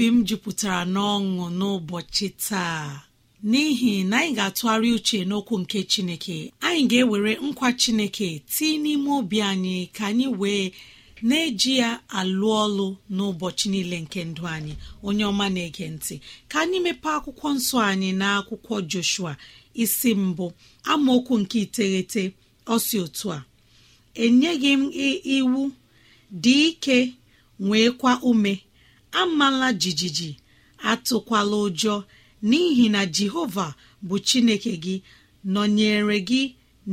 obi m jupụtara n'ọṅụ n'ụbọchị taa n'ihi na anyị ga-atụgharị uche n'okwu nke chineke anyị ga-ewere nkwa chineke tii n'ime obi anyị ka anyị wee na-eji ya alụ ọlụ n'ụbọchị niile nke ndụ anyị onye ọma na-ege ntị ka anyị mepee akwụkwọ nsọ anyị na akwụkwọ Joshua isi mbụ amaokwu nke iteghete ọsi otu a enyeghị m iwu dị ike nwee kwa ume amala jijiji atụkwala ụjọ n'ihi na jehova bụ chineke gị nọnyere gị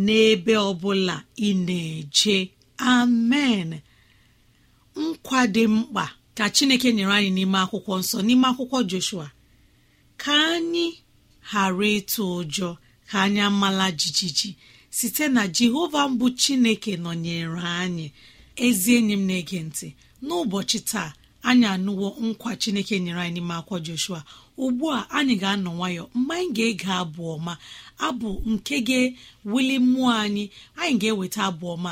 n'ebe ọbụla ị na-eje amen nkwa dị mkpa ka chineke nyere anyị n'ime akwụkwọ nsọ n'ime akwụkwọ joshua ka anyị ghara ịtụ ụjọ ka anyị amala jijiji site na jehova mbụ chineke nọnyere anyị ezi enyi m na-ege ntị n'ụbọchị taa anyị anụwo nkwa chineke nyere anyị n'ime akwa joshua ugbu a anyị ga-anọ nwayọ mgbe anyị ga-ege abụ ọma abụ nke ga-ewuli mmụọ anyị anyị ga-eweta abụ ọma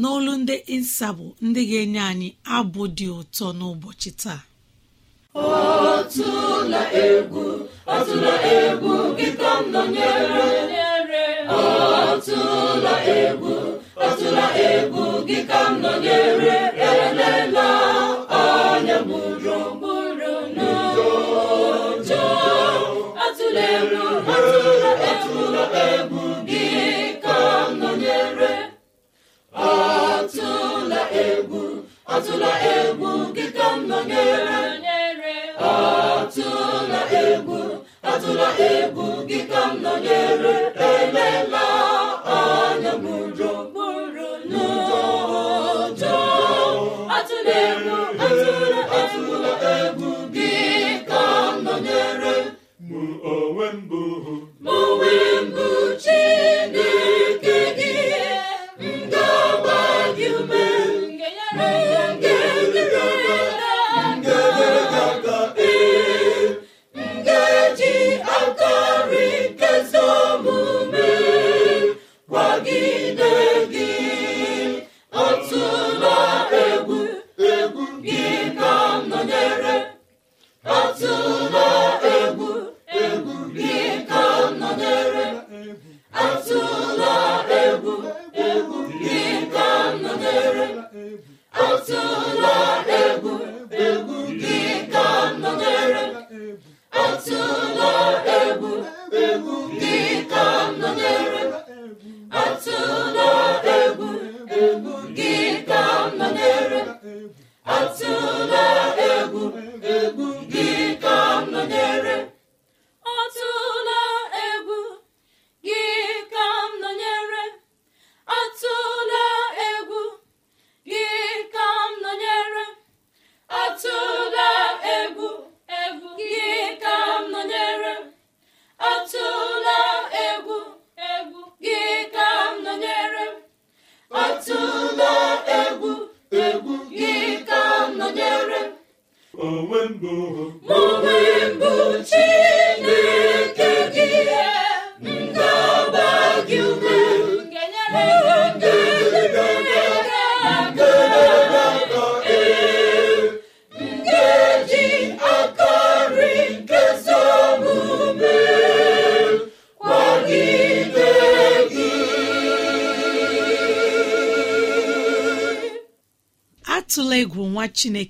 n'olu ndị nsabụ ndị ga-enye anyị abụ dị ụtọ n'ụbọchị taa egwu egwu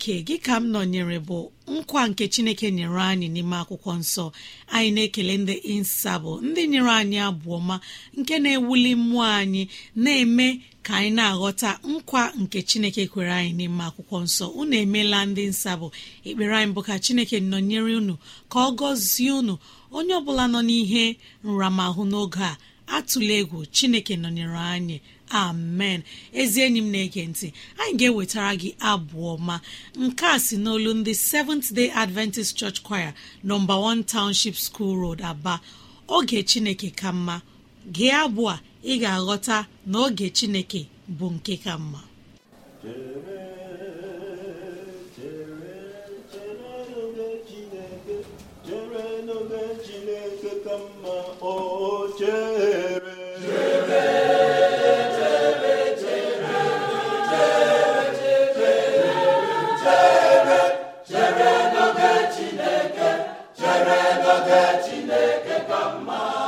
chineke gị ka m nọnyere bụ nkwa nke chineke nyere anyị n'ime akwụkwọ nsọ anyị na-ekele ndị nsabụ ndị nyere anyị abụọ ma nke na-ewuli mmụọ anyị na-eme ka anyị na-aghọta nkwa nke chineke kwere anyị n'ime akwụkwọ nsọ unu emeela ndị nsabụ ekpere anyị bụ ka chineke nọnyere unu ka ọ gọzie unu onye ọ bụla nọ n'ihe nramahụ n'oge a atụla egwu chineke nọnyere anyị amen ezi enyi m na-ege ntị anyị ga-ewetara gị abụọ ma, nke a si n'olu ndị Seventh Day Adventist Church Choir nọmba 1 Township School Road Aba oge Chineke ka mma gị abụọ ị ga-aghọta na oge Chineke bụ nke ka mma chere n'oge chere Chineke ka mma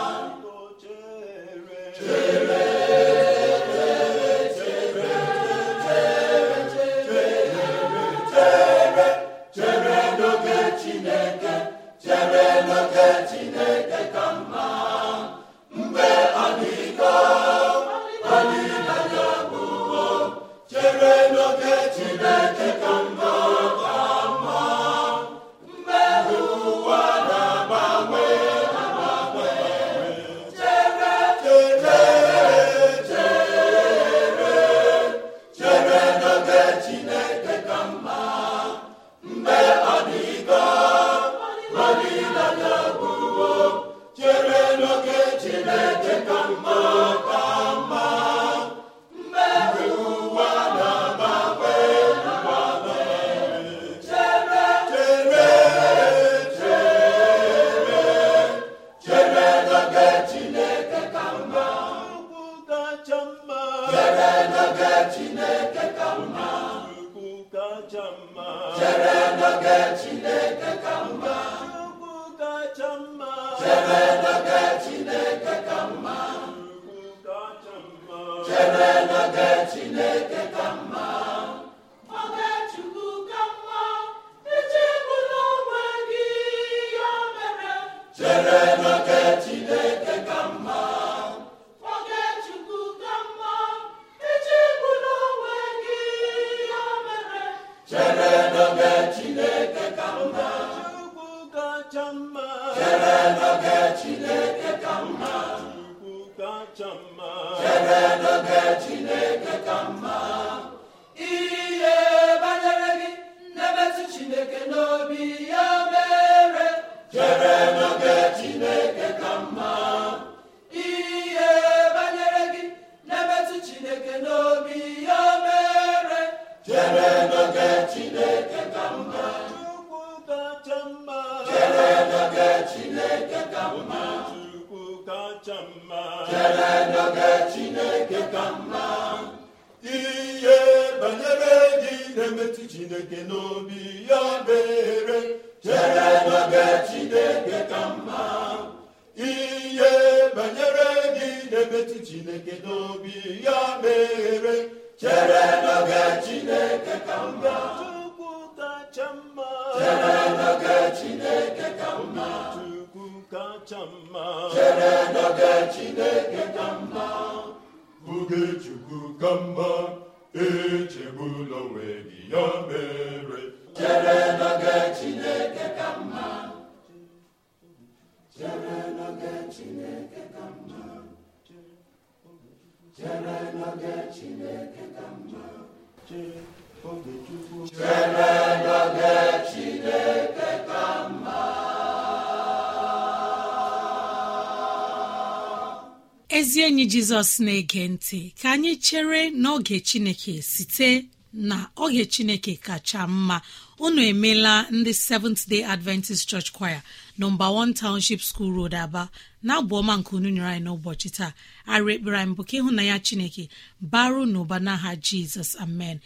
Amen. nke n'obi ya obere chere n'oge chineke ka mma ihe banyere gị na chineke n'obi ya mere chere n'oge chineke ka mma chukwu kacha mma chere n'oge chineke ka mma chere n'oge chineke ka mma oge chukwu ka mma echegbula onwe gị ya mere chere n'oge Chineke ka ka mma ezi enyi jizọs na-ege ntị ka anyị chere n'oge chineke site na oge chineke kacha mma unu emela ndị seventh day adventist church choir nọmba one township school road aba na -abụọma nke unu nyere anyị n'ụbọchị taa arụ ekpere anyị bụ ka ịhụnanya chineke baru n'ụba n'aha jizọs amen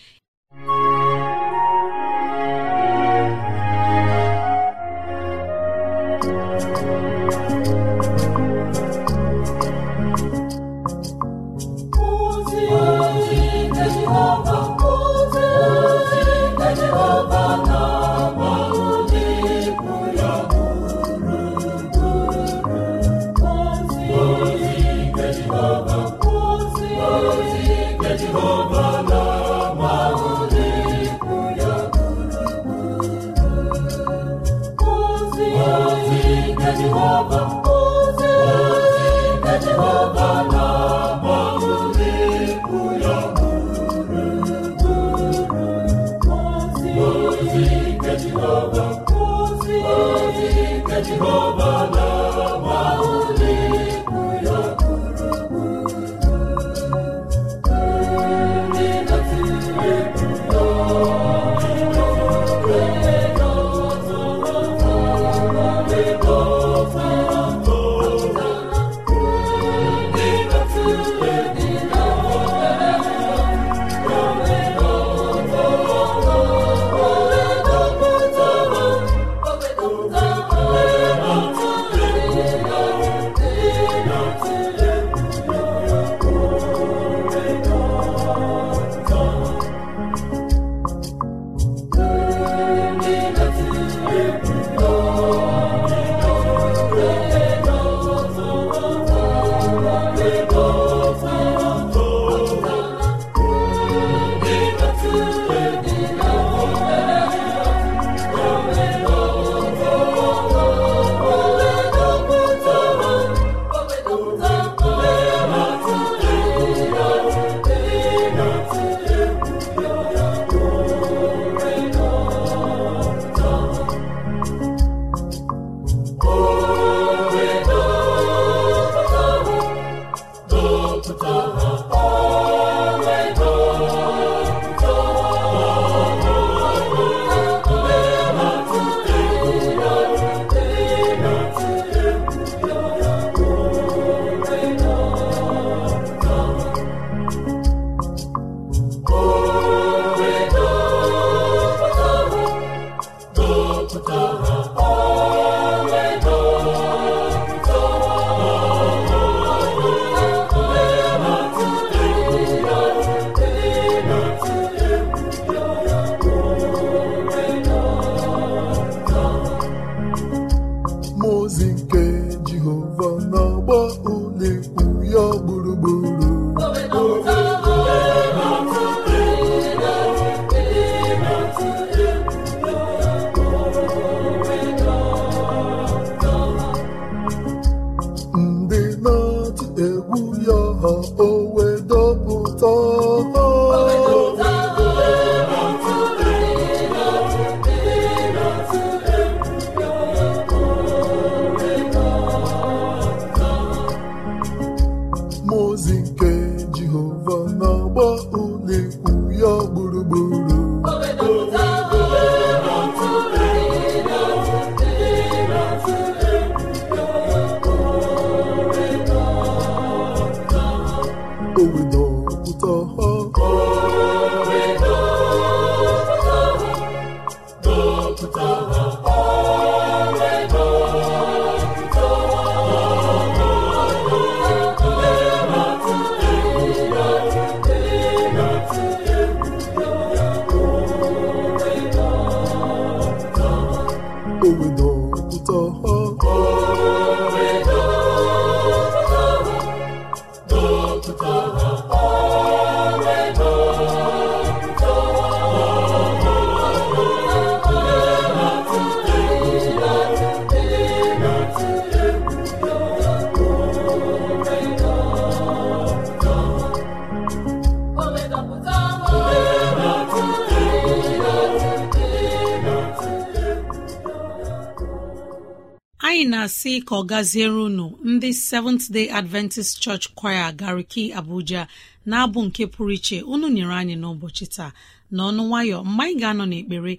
anyị na-asị ka ọ gaziere unu ndị Seventh Day Adventist Church Choir Gariki Abuja na-abụ nke pụrụ iche unu nyere anyị n'ụbọchị taa n'ọnụ nwayọ mgbe anyị ga-anọ n'ekpere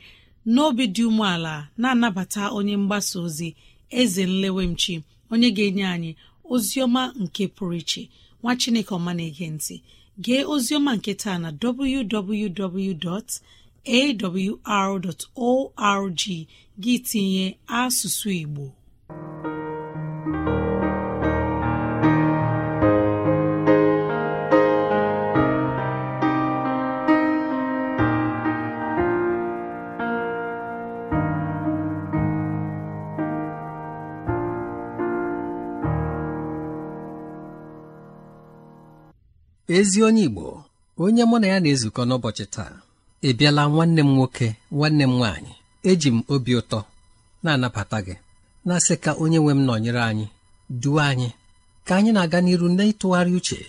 n'obi dị umeala na-anabata onye mgbasa ozi eze nlewemchi onye ga-enye anyị ozi ọma nke pụrụ iche nwa Chineke ọma na-ege gee ozi ọma nke taa na www.awr.org gị tinye asụsụ Igbo ezi onye Igbo onye mụ na ya na-ezukọ n'ụbọchị taa ebiala nwanne m nwoke nwanne m nwanyị? eji m obi ụtọ na-anabata gị na-asị ka onye nwe m nọnyere anyị duo anyị ka anyị na-aga n'iru n'ịtụgharị uche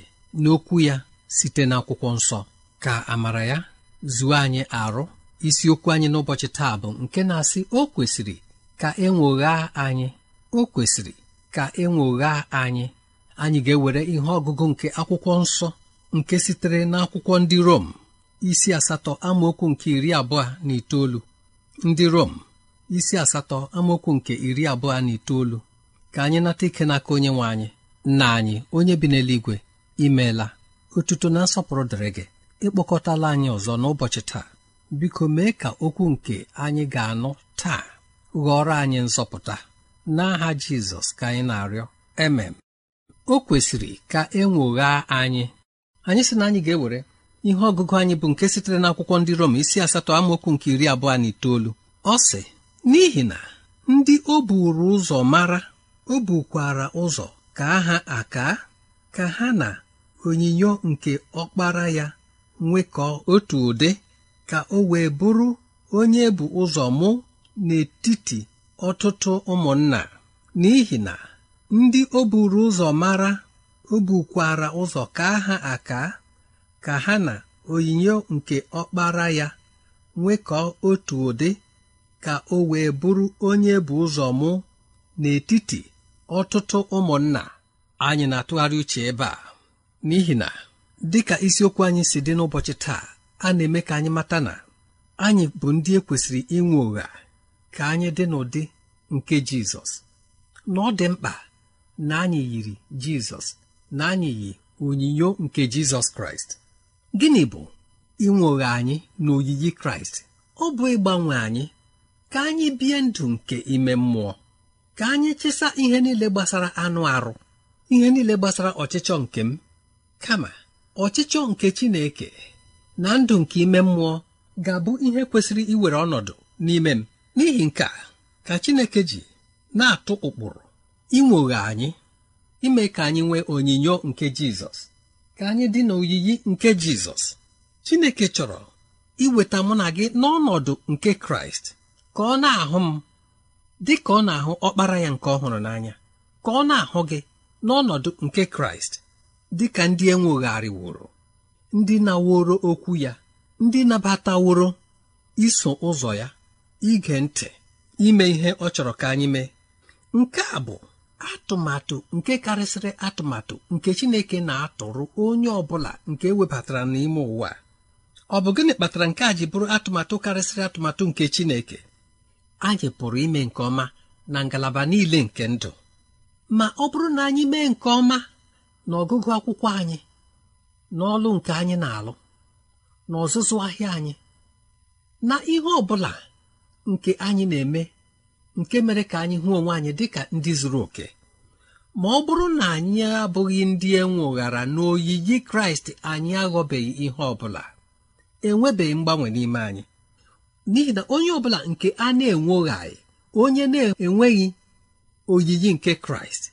n'okwu ya site n'akwụkwọ nsọ ka amara ya zuo anyị arụ isiokwu anyị n'ụbọchị taa bụ nke na-asị o kwesịrị ka e nwoghaa anyị o kwesịrị ka e anyị anyị ga-ewere ihe ọgụgụ nke akwụkwọ nsọ nke sitere n'akwụkwọ ndị Rom isi asatọ amaokwu nke iri abụọ na itoolu ndị Rom isi asatọ amaokwu nke iri abụọ na itoolu ka anyị nata ike n'aka onye nwe anyị nna anyị onye bi n'eluigwe imeela otuto na nsọpụrụ dịrị gị ịkpọkọtala anyị ọzọ n'ụbọchị taa biko mee ka okwu nke anyị ga-anụ taa ghọrọ anyị nzọpụta n'aha Jizọs ka anyị na-arịọ emem o kwesịrị ka e ụgha anyị anyị sị na anyị ga-ewere ihe ọgụgụ anyị bụ nke sitere n'akwụkwọ ndị Rom isi asatọ amaokwu nke iri abụọ na itoolu ọ sị n'ihi na ndị o buru ụzọ mara o bukwara ụzọ ka ha aka ka ha na onyinyo nke ọkpara ya nwekọọ otu ụdị ka o wee bụrụ onye bụ ụzọ mụ n'etiti ọtụtụ ụmụnna n'ihi na ndị o buru ụzọ mara o bukwara ụzọ ka ha aka ka ha na onyinyo nke ọkpara ya nwekọọ otu ụdị ka o wee bụrụ onye bụ ụzọ mụ n'etiti ọtụtụ ụmụnna anyị na-atụgharị uche ebe a n'ihi na dịka isiokwu anyị si dị n'ụbọchị taa a na-eme ka anyị mata na anyị bụ ndị ekwesịrị inwe ụgha ka anyị dị n'ụdị nke Jizọs na ọ dị mkpa na anyị yiri Jizọs na anyị yi onyinyo nke Jizọs Kraịst gịnị bụ inwe ụgha anyị na oyiyi Kraịst ọ bụ ịgbanwe anyị ka anyị bie ndụ nke ime mmụọ ka anyị chịsa ihe niile gbasara anụ arụ ihe niile gbasara ọchịchọ nke m kama ọchịchọ nke Chineke na ndụ nke ime mmụọ ga-abụ ihe kwesịrị iwere ọnọdụ n'ime m n'ihi nke a ka Chineke ji na-atụ ụkpụrụ inwoghe anyị ime ka anyị nwee onyinyo nke Jizọs ka anyị dị n'oyiyi nke Jizọs Chineke chọrọ iweta mụ na gị n'ọnọdụ nke Kraịst ka ọ na-ahụ m dị ka ọ na-ahụ ọkpara ya nke ọhụrụ n'anya ka ọ na-ahụ gị n'ọnọdụ nke Kraịst dị ka ndị wụrụ, ndị na-woro okwu ya ndị nabataworo iso ụzọ ya ige ntị ime ihe ọ chọrọ ka anyị mee nke a bụ atụmatụ nke karịsịrị atụmatụ nke Chineke na-atụrụ onye ọ bụla nke e webatara n'ime ụwa ọ bụ gịnị kpatara nke a ji bụrụ atụmatụ karịsịrị atụmatụ nke Chineke anyị pụrụ ime nke ọma na ngalaba niile nke ndụ ma ọ bụrụ na anyị mee nke ọma na ọgụgụ akwụkwọ anyị na ọlụ nke anyị na-alụ na ọzụzụ ahịa anyị na ihe ọ bụla nke anyị na-eme nke mere ka anyị hụ onwe anyị dịka ndị zuru oke ma ọ bụrụ na anyị abụghị ndị enwe enweghara n'oyiyi Kraịst anyị aghọbeghị ihe ọ bụla enwebeghị mgbanwe n'ime anyị n'ihi na onye ọ bụla nke a na-enwoghaghị onye na-enweghị oyiyi nke kraịst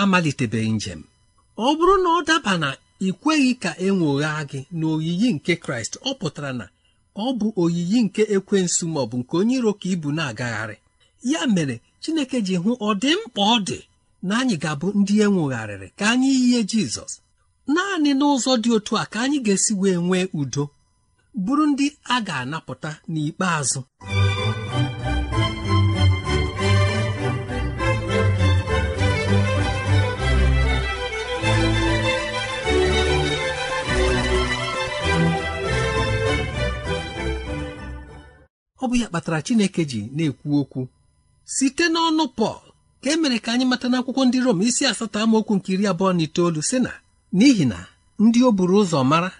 amalitebeghị njem ọ bụrụ na ọ daba na ị kweghị ka e nwoghaa gị na oyiyi nke kraịst ọ pụtara na ọ bụ oyiyi nke ekwensu ma ọ bụ nke onye iro ka ibu na-agagharị ya mere chineke ji hụ ọ dị mkpa ọ dị na anyị ga-abụ ndị e ka anyị yie jizọs naanị n'ụzọ dị otu a ka anyị ga-esi wee nwee udo bụrụ ndị a ga-anapụta n'ikpeazụ ọ bụ ya kpatara Chineke ji na-ekwu okwu site n'ọnụ Pọl ka e mere ka anyị mata n'akwụkwọ ndị Rom isi asatọ amaokwu nke iri abụọ na itoolu sị na n'ihi na ndị o buru ụzọ mara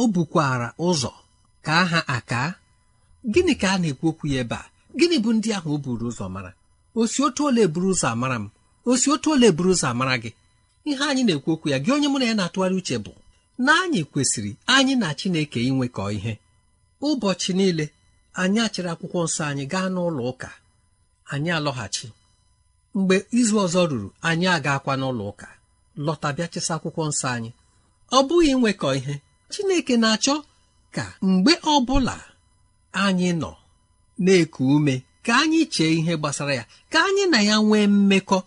o bukwara ụzọ ka aha aka gịnị ka a na-ekwu okwu ya ebe a gịnị bụ ndị ahụ o buru ụzọ mara osi otu ole buru ụzọ amara m osi otu ole buru ụzọ amara gị ihe anyị na-ekwu okwu ya gị onye mụ na ya na-atụgharị uche bụ na anyị kwesịrị anyị na Chineke inwekọ ihe ụbọchị niile anyị achịrị akwụkwọ nsọ anyị gaa n'ụlọ ụka anyị alọghachi mgbe izu ọzọ ruru anyị agakwa n'ụlọ ụka lọta bịa chịsa akwụkwọ nsọ anyị ọ bụghị inwekọ ihe Chineke na-achọ ka mgbe ọbụla anyị nọ na-eku ume ka anyị chee ihe gbasara ya ka anyị na ya nwee mmekọ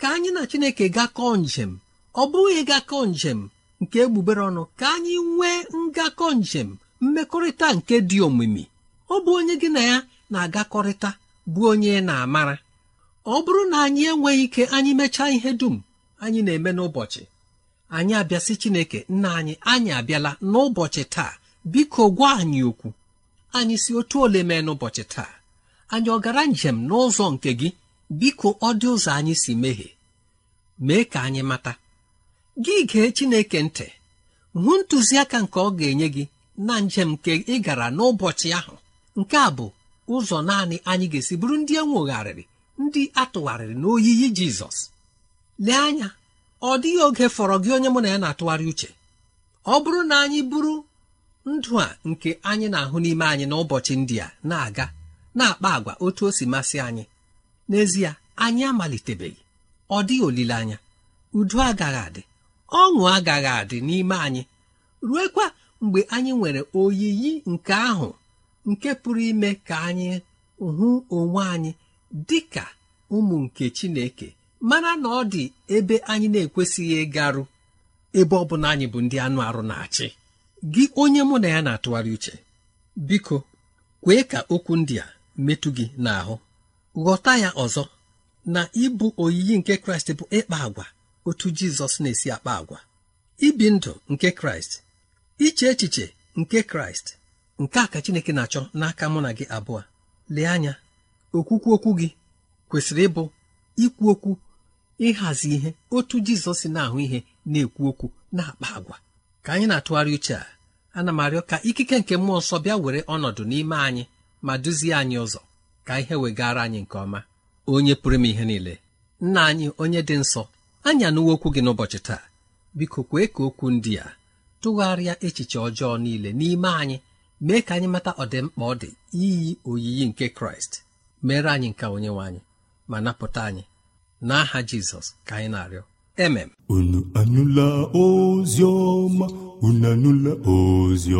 ka anyị na Chineke gakọọ njem ọ bụghị gakọọ njem nke egbugbere ọnụ ka anyị nwee ngakọ njem mmekọrịta nke dị omimi ọ bụ onye gị na ya na-agakọrịta bụ onye na-amara ọ bụrụ na anyị enweghị ike anyị mechaa ihe dum anyị na-eme n'ụbọchị anyị abịasị Chineke nna anyị anyị abịala n'ụbọchị taa biko gwa anyị okwu anyị si otu ole mee n'ụbọchị taa anyị ọ gara njem n'ụzọ nke gị biko ọ dị ụzọ anyị si mehie mee ka anyị mata gị gee Chineke ntị hụ ntụziaka nke ọ ga-enye gị na njem nke ị gara n'ụbọchị ahụ nke a bụ ụzọ naanị anyị ga-esi bụrụ ndị enwegharịrị ndị atụgharịrị n'oyiyi Jizọs lee anya ọ dịghị oge fọrọ gị onye mụ na ya na-atụgharị uche ọ bụrụ na anyị bụrụ ndụ a nke anyị na-ahụ n'ime anyị n'ụbọchị ndị a na-aga na-akpa agwa otu o si masị anyị n'ezie anyị amalitebeghị ọ dịghị olileanya udo agaghị adị ọṅụ agaghị adị n'ime anyị ruekwa mgbe anyị nwere oyiyi nke ahụ nke pụrụ ime ka anyị hụ onwe anyị dị ka ụmụ nke Chineke mana na ọ dị ebe anyị na-ekwesịghị ịgarụ ebe ọ bụla anyị bụ ndị anụ arụ na-achị gị onye mụ na ya na-atụgharị uche biko kwee ka okwu ndị a metụ gị n'ahụ ghọta ya ọzọ na ịbụ oyiyi nke kraịst bụ ịkpa agwa otu jizọs na-esi akpa agwa ibi ndụ nke kraịst iche echiche nke kraịst nke a ka chineke na-achọ n'aka mụ na gị abụọ lee anya okwukwu okwu gị kwesịrị ịbụ ikwu okwu ịhazi ihe otu jizọs na-ahụ ihe na-ekwu okwu na-akpa agwa ka anyị na-atụgharị uche a ana m arịọ ka ikike nke mmụọ nsọ bịa were ọnọdụ n'ime anyị ma duzie anyị ụzọ ka ihe wegara anyị nke ọma onye pụrụ m ihe niile nna anyị onye dị nsọ anyị anụwo okwu gị n'ụbọchị taa biko kwee ka okwu ndị a tụgharịa echiche ọjọọ niile n'ime anyị mee ka anyị mata ọdịmkpa ọ dị iyi oyiyi nke kraịst mere anyị nke onyenwe anyị ma napụta anyị n'aha jizọs ka anyị na-arịọ mm unu anụla ozi ọma unu anụla ozi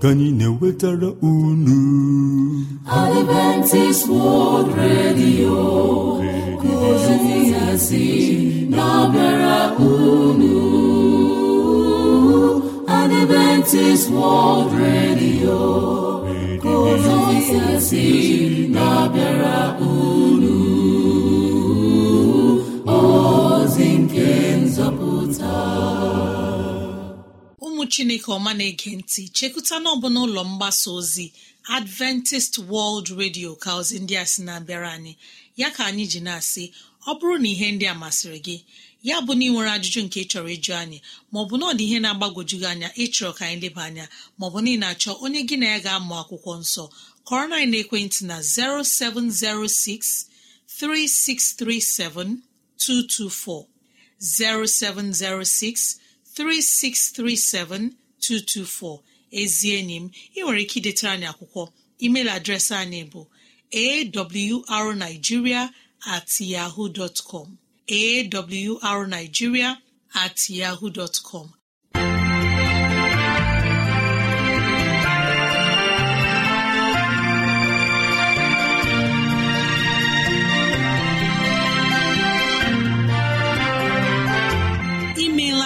ka anyị na-ewetara unu Adventist World Radio ozi hazi na-abịara unu Adventist World Radio ozi hazi na-abịara unu chineke ọma na-ege ntị chekụta n'ọbụla ụlọ mgbasa ozi adventist world radio ka ozi ndị a sị na-abịara anyị ya ka anyị ji na-asị ọ bụrụ na ihe ndị a masịrị gị ya bụ na ị nwere ajụjụ nke ị chọrọ ịjụ anyị maọbụ na ọ dị ihe na-agbagojugị anya ịchọrọ ka anyị leba anya maọbụ na ị na-achọ onye gị na ya ga-amụ akwụkwọ nsọ kọrọ na ekwentị na 0706 0706 3637224 ezi enyi m ị nwere ike idetara anyị akwụkwọ email adreesị anyị bụ awrnigeria at yahoo dot com awrnigeria at yahoo dot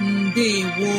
ndewo